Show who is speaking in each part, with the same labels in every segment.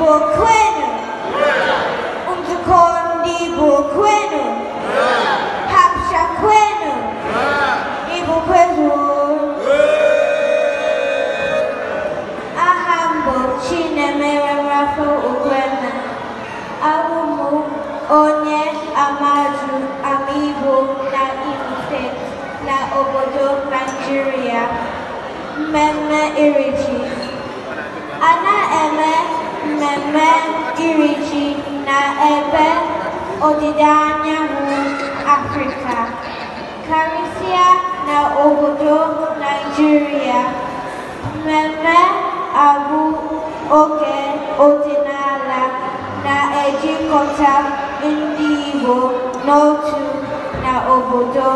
Speaker 1: Burkweni Umzukondi Burkwenu Hapsha Kwenu Ibukwezu Ahambo Chinemere Rafa Ukwena Abumu Onye Amaju amibu na Ife na obodo Nigeria Mmemme Irichi Ana Eme Kirichi na ebe ọdịda anyanwụ Afrịka, karịsịa na obodo Naịjirịa. Mmemme abụ oke ọdịnala na-ejikọta ndị Igbo n'otu na obodo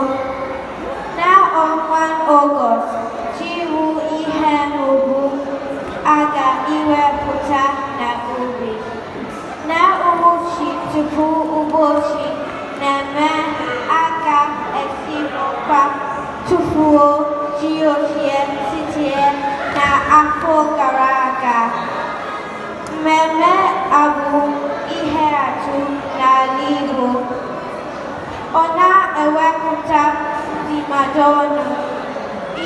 Speaker 1: Tupu ụbọchị na-eme aka esi n'ụkwa tufuo ji ochie sitie na gara aga. Mmemme abu ihe atụ n'ala Igbo. Ọ na-ewepụta ndịmadụ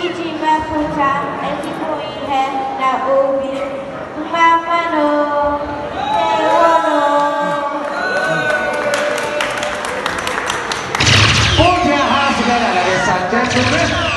Speaker 1: iji mepụta ezigbo Thank you.